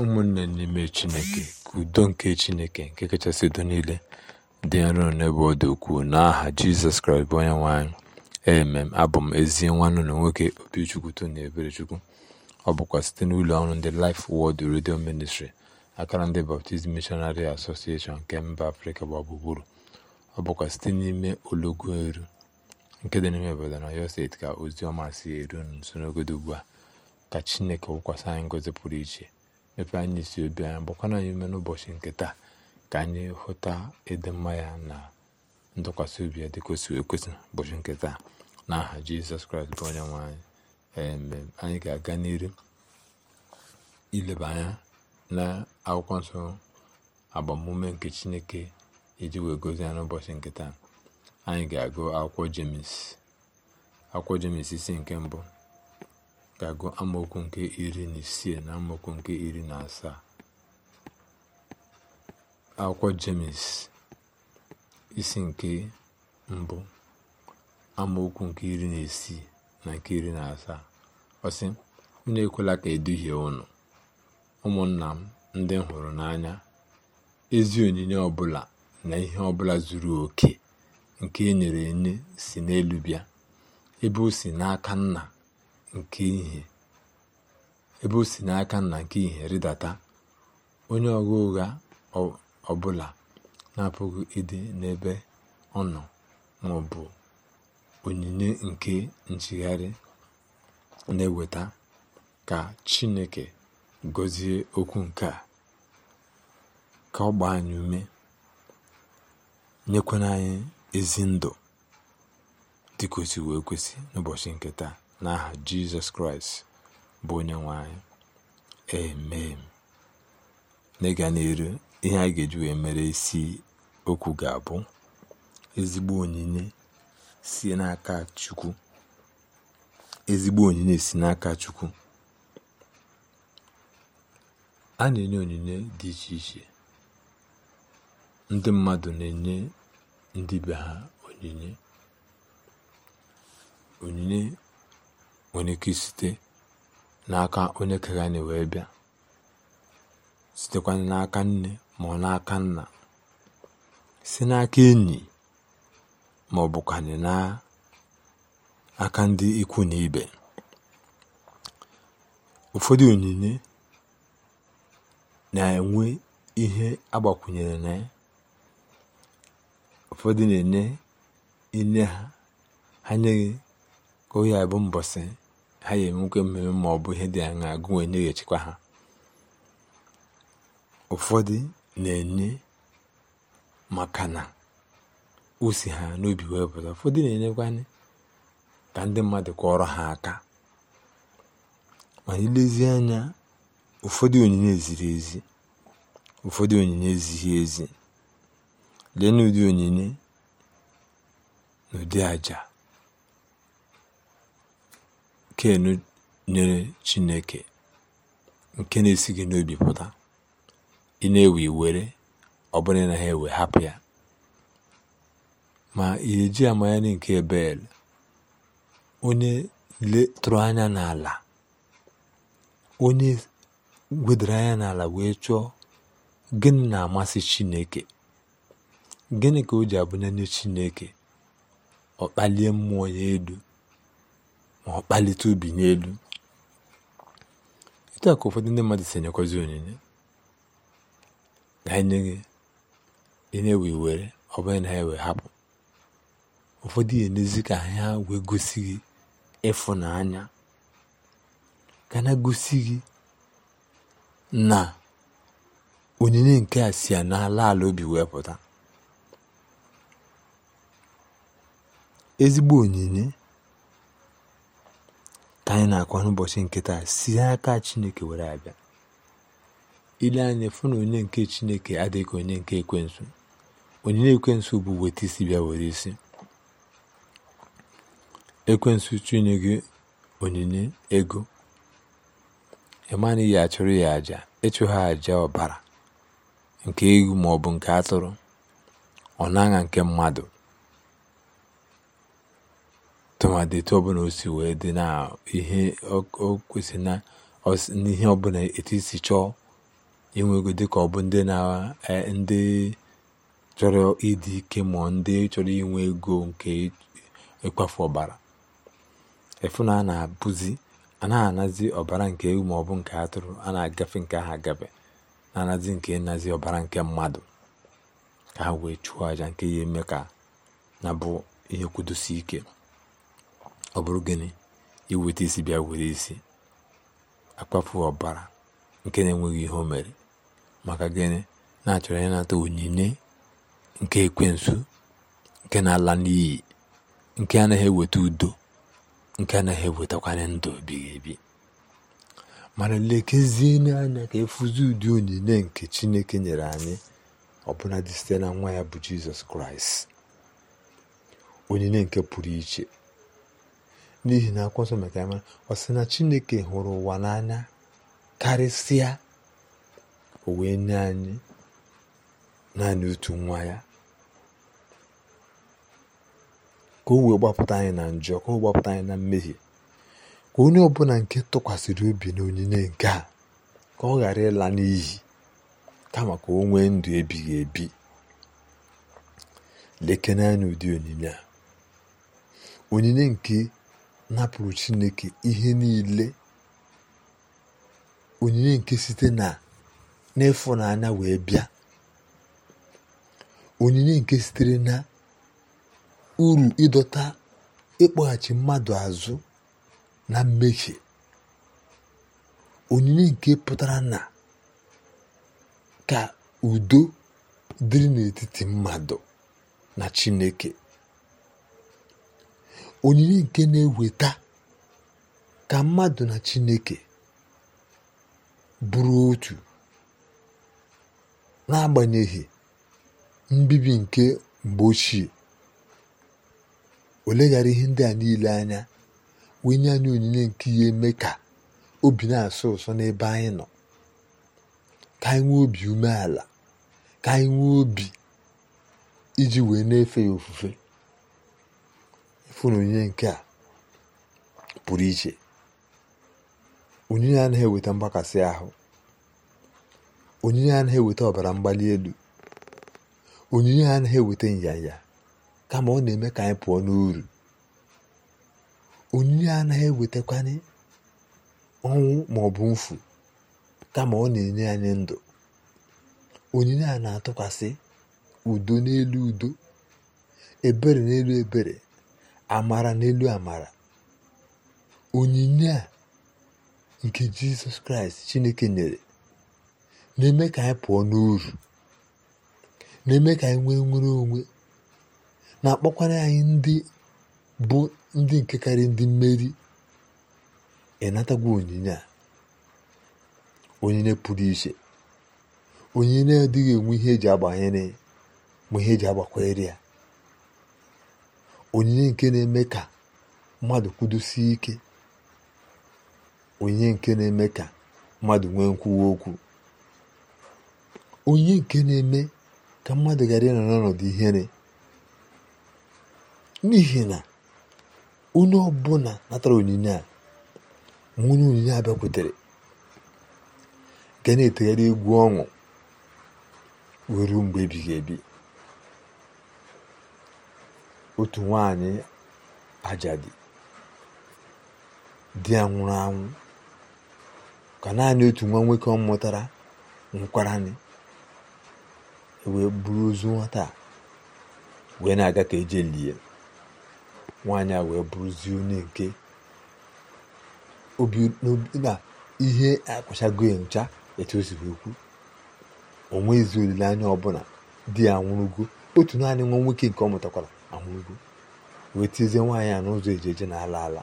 ụmụnne n'ime Chineke ka udo nke Chineke nke kachasị udo niile dị nro n'ebe ọ dị ukwuu n'aha Jizọs Kraịst bụ onye nwaanyị emem abụ m ezi nwanne ụlọ nwoke Obichukwu Tony Eberechukwu ọ bụkwa site n'ụlọ ọrụ ndị Life wọd redio ministri akara ndị baptizim Missionary Association nke mba Afrịka gba ọ bụkwa site n'ime ologo eru nke dị n'ime obodo na steeti ka ozi ọma si eru nso n'ogodo ugbu a ka Chineke wụkwasị anyị ngozi pụrụ iche mepe anyị isi obi anyị gbakwana anyị ume n'ụbọchị nke taa ka anyị hụta ịdị mma ya na ntụkwasị obi ya dị kwesịrị ekwesị ụbọchị nke taa n'aha aha jizọs kraịst bụ onye nwe anyị anyị ga-aga n'iru ileba anya na akwụkwọ nsọ agbamume nke chineke iji wee gozi ya n'ụbọchị nke taa anyị ga-agụ akwụkwọ jemis akwụkwọ jemis isi nke mbụ ga-agụ amaokwu nke iri na isii na amaokwu nke iri na asaa akwụkwọ james isi nke mbụ amaokwu nke iri na isii na nke iri na asaa ọsị unu ekwela ka eduhie unu ụmụnna m ndị m hụrụ n'anya ezi onyinye ọbụla na ihe ọbụla zuru oke nke e nyere enye si n'elu bịa ebe o si n'aka nna nke ihe ebe o si n'aka nna nke ihe rịdata onye ọgha ụgha ọbụla na-apụghị ịdị n'ebe ọ nọ ma ọ bụ onyinye nke nchigharị na-eweta ka chineke gọzie okwu nke a ka ọ gbaa anyị ume nyekwana anyị ezi ndụ dịka wee kwesị n'ụbọchị nke taa n'aha jizọs kraịst bụ onye nwe anyị emee n'ịga n'elu ihe a ga-eji wee mere isi okwu ga-abụ ezigbo onyinye si n'aka chukwu ezigbo onyinye si n'aka chukwu a na-enye onyinye dị iche iche ndị mmadụ na-enye ndị be ha onyinye nwere ike site n'aka onye kere anyị wee bịa sitekwa n'aka nne ma ọ n'aka nna si n'aka enyi ma ọ n'aka ndị ikwu na ibe ụfọdụ onyinye na-enwe ihe agbakwunyere na ya ụfọdụ na-enye inye ha ha nyeghị ka oyi abụ mbọsị ha ya enwekwa mmemme ma ọ bụ ihe dị aṅaa gị onye ha ụfọdụ na-enye maka na usi ha n'obi wee pụta ụfọdụ na-enyekwanye ka ndị mmadụ kọọrọ ha aka mana ilezi anya ụfọdụ onyinye ziri ezi ụfọdụ onyinye ezighi ezi lee n'ụdị onyinye n'ụdị aja Ken nyere Chineke nke na-esi gị n'obi pụta, ị na-ewe iwere ọ bụrụ na ha ewe hapụ ya ma ị eji amanyere nke Bel onye letụrụ anya n'ala onye wedara anya n'ala wee chọọ gịnị na-amasị Chineke gịnị ka o ji abụnyere Chineke ọ kpalie mmụọ ya elu ma ọ kpalite obi n'elu etu ka ụfọdụ ndị mmadụ si onyinye na-enye gị enye wee were ọ bụghị na ha wee hapụ ụfọdụ ihe n'ezi ka ha wee gosi gị ịfụnanya ka na gosi gị na onyinye nke a si ya n'ala ala obi wee pụta ezigbo onyinye anyị na-akọ n'ụbọchị nke taa si aka chineke were abịa ile anya fụ na onye nke chineke adịghị onye nke ekwensu onye na-ekwensu bụ weta isi bịa were isi ekwensu chunye gị onyinye ego ịmana ya achụrụ ya aja ịchụ ha aja ọbara nke egwu maọbụ nke atụrụ ọ na-aṅa nke mmadụ tụmadị etu ọbụla osi wee dị na ihe o kwesị na n'ihe ọbụla etu isi chọọ inwe ego dịka ọ bụ ndị na e, ndị chọrọ ịdị ike ma ndị chọrọ inwe ego nke ịkpafu ọbara efu na a na-abụzi a anazi ọbara nke ewu ma ọ bụ nke atụrụ a na-agafe nke ahụ agafe na-anazi nke nnazi ọbara nke mmadụ ka ha wee chụọ àjà nke ya eme ka na bụ ihe kwudosi ike ọ bụrụ gịnị iweta isi bịa were isi akpafu ọbara nke na-enweghị ihe o mere maka gịnị na-achọrọ ịnata onyinye nke ekwensu nke na-ala n'iyi nke anaghị eweta udo nke anaghị ewetakwanye ndụ ebighị ebi mana lekezie n'anya ka efuzi ụdị onyinye nke chineke nyere anyị ọbụla dị site na nwa ya bụ jizọs kraịst onyinye nke pụrụ iche n'ihi na akwụkwọ nsọ mere mara ọ sị na chineke hụrụ ụwa n'anya karịsịa o wee nye anyị naanị otu nwa ya ka o wee gbapụta anyị na njọ ka o gbapụta anyị na mmehie ka onye ọbụla nke tụkwasịrị obi na onyinye nke a ka ọ ghara ịla n'iyi kama ka o nwee ndụ ebighị ebi lekene anya ụdị onyinye a onyinye nke napụrụ chineke ihe niile onyinye nke site na n'ịfụnanya wee bịa onyinye nke sitere na uru ịdọta ịkpọghachi mmadụ azụ na mmehie onyinye nke pụtara na ka udo dịrị n'etiti mmadụ na chineke onyinye nke na-eweta ka mmadụ na chineke bụrụ otu n'agbanyeghị mbibi nke mgbe ochie o ihe ndị a niile anya wee nye anyị onyinye nke ihe eme ka obi na-asọ ụsọ n'ebe anyị nọ ka anyị nwee obi umeala ka anyị nwee obi iji wee na-efe ya ofufe fụrụ onyinye nke a pụrụ iche onyinye anaghị eweta mgbakasị ahụ onyinye anaghị eweta ọbara mgbali elu onyinye anaghị eweta nyanya kama ọ na-eme ka anyị pụọ n'uru onyinye anaghị ewetakwanye ọnwụ ma ọ bụ mfu kama ọ na-enye anyị ndụ onyinye a na-atụkwasị udo n'elu udo ebere n'elu ebere amara n'elu amara onyinye a nke jizọs kraịst chineke nyere na-eme ka anyị pụọ n'uru na-eme ka anyị nwee nwere onwe na-akpọkwara anyị ndị bụ ndị nke karị ndị mmeri ịnatagwo onyinye a onyinye pụrụ iche onyinye adịghị enwe ihe eji agbanyere ma ihe eji agbakwere ya onyinye nke na-eme ka mmadụ kwudosie ike onyinye nke na-eme ka mmadụ nwee nkwuwa okwu onyinye nke na-eme ka mmadụ ghara ịnọ n'ọnọdụ ihere n'ihi na onye ọbụla natara onyinye a ma onyinye a bịakwutere ga na-etegharị egwu ọṅụ wee mgbe ebighị ebi otu nwanyị ajadi di ya nwụrụ anwụ ka naanị otu nwa nwoke ọ mụtara nkwaranị e wee bụrụ ozu nwata wee na-aga ka eje lie nwaanyị a wee bụrụzie onye nke na ihe akwụchago ya ncha etu o siri okwu o nweghịzi olileanya ọbụla di ya nwụrụgo otu naanị nwa nwoke nke ọ mụtakwara amụgo wee tizie nwaanyị a n'ụzọ eji eje na ala ala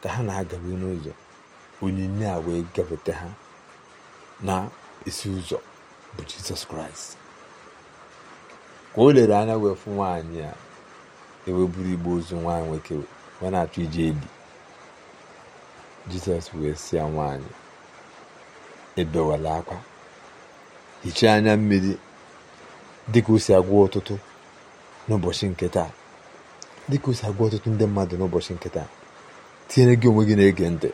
ka ha na-agabe n'ụzọ onyinye a wee gabata ha na isi ụzọ bụ jizọs kraịst ka o lere anya wee fụ nwaanyị a eweburu igbe ozu nwaanyị nwoke wee na-achọ ije eli jizọs wee si ya nwaanyị ebewala akwa hichaa anya mmiri dịka o si agwa ọtụtụ n'ụbọchị nke taa dịka osi agwa ọtụtụ ndị mmadụ n'ụbọchị nke taa tinyere gị onwe gị na-ege ntị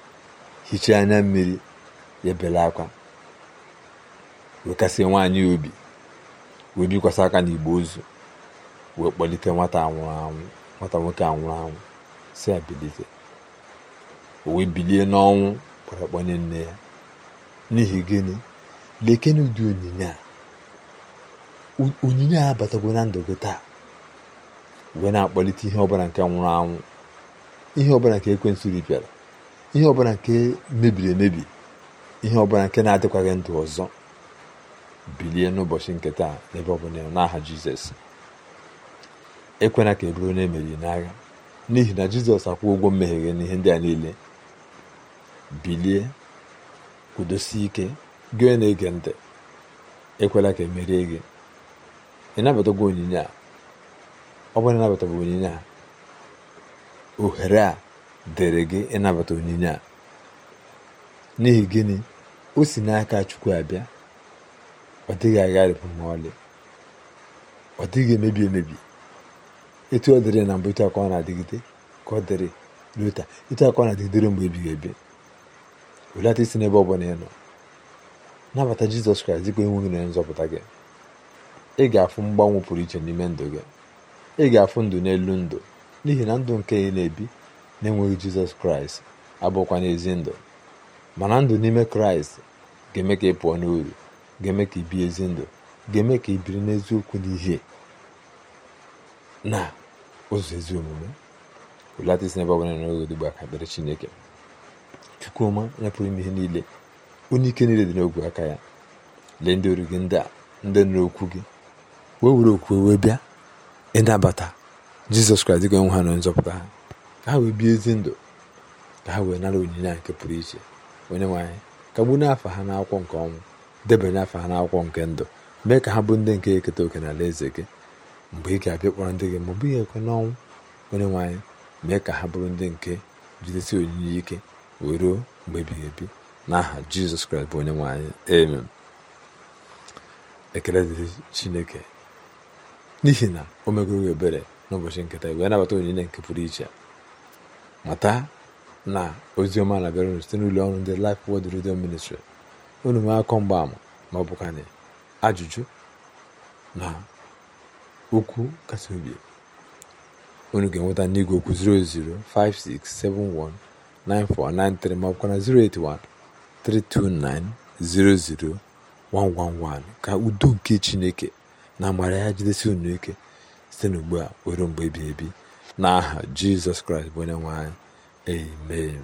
hichaa anya mmiri ya bela akwa wekasị nwaanyị obi wee bikwasị aka igbo ozu wee kpọlite nwata anwụrụ anwụ nwata nwoke anwụrụ anwụ si ya bilite o wee bilie n'ọnwụ kpọrọ nne ya n'ihi gịnị lekene ụdị onyinye a onyinye a abatagwo na ndụ gị taa wee na-akpọlite ihe ọbụla nke nwụrụ anwụ ihe ọbụla nke ekwensụ ripịara ihe ọbụla nke mebiri emebi ihe ọbụla nke na-adịkwaghị ndụ ọzọ bilie n'ụbọchị nke taa n'ebe ọbụla n'aha jizọs ekwena ka eburu na emeri n'agha n'ihi na jizọs akwụ ụgwọ mmehie n'ihe ndị a niile bilie kwudosie ike gị na-ege ntị ekwela ka emerie gị ị nabatago onyinye a ọ bụrụ bụ onyinye a ohere a dịrị gị ịnabata onyinye a n'ihi gịnị o si n'aka chukwu abịa ọ dịghị agharịpụ ma ọlị ọ dịghị emebi emebi etu ọ dịrị na mbụ etu aka na-adịgide ka ọ dịrị lota etu aka ọ na-adịgidere mgbe ebighị ebi welata isi n'ebe ọ bụla ị nọ nabata jizọs kraịst dịka enweghị na nzọpụta gị ị ga-afụ mgbanwe pụrụ iche n'ime ndụ gị ị ga-afụ ndụ n'elu ndụ n'ihi na ndụ nke ị na-ebi na-enweghị jizọs kraịst abụkwa n'ezi ndụ mana ndụ n'ime kraịst ga-eme ka ị pụọ n'uru ga-eme ka ị bie ezi ndụ ga-eme ka ị biri n'eziokwu n'ihe na ụzọ ezi omume ụlata isi n'ebe ọbụla oge odibo aka dịrị chineke chukwuma onye pụrụ m ihe niile onye ike niile dị n'ogwe aka ya lee ndị ọrụ gị ndị a ndị nụrụ okwu gị wee were okwu wee bịa ịnabata jizọs kraịst dịka nwe ha na nzọpụta ha ka ha wee bie ezi ndụ ka ha wee nara onyinye a nke pụrụ iche onye nwe anyị kagbu n'afọ ha n'akwụkwọ nke ọnwụ debanye n'afọ ha n'akwụkwọ nke ndụ mee ka ha bụ ndị nke eketa oke n'ala eze gị mgbe ị ga-abịa kpọrọ ndị gị ma ọ bụghị ekwe n'ọnwụ onye nwanyị anyị mee ka ha bụrụ ndị nke jidesi onyinye ike wee ruo mgbe ebighị ebi n'aha jizọs kraịst bụ onye nwe anyị ekele dịrị chineke n'ihi na o megoro ebere n'ụbọchị nketa wee nabata onyinye nke pụrụ iche mata na oziọma na-abịara unu site n'ụlọ ọrụ ndị Life Word Radio Ministry unu nwee akọ mgbaama ma ọ ajụjụ na okwu kasị obi unu ga-enweta n'igwe okwu 005671943 ma ka na 08132900111 ka udo nke Chineke na amara ya jidesi unu ike site n'ugbu a ruo mgbe ebighị ebi n'aha jizọs kraịst bụ onye nwanyị amen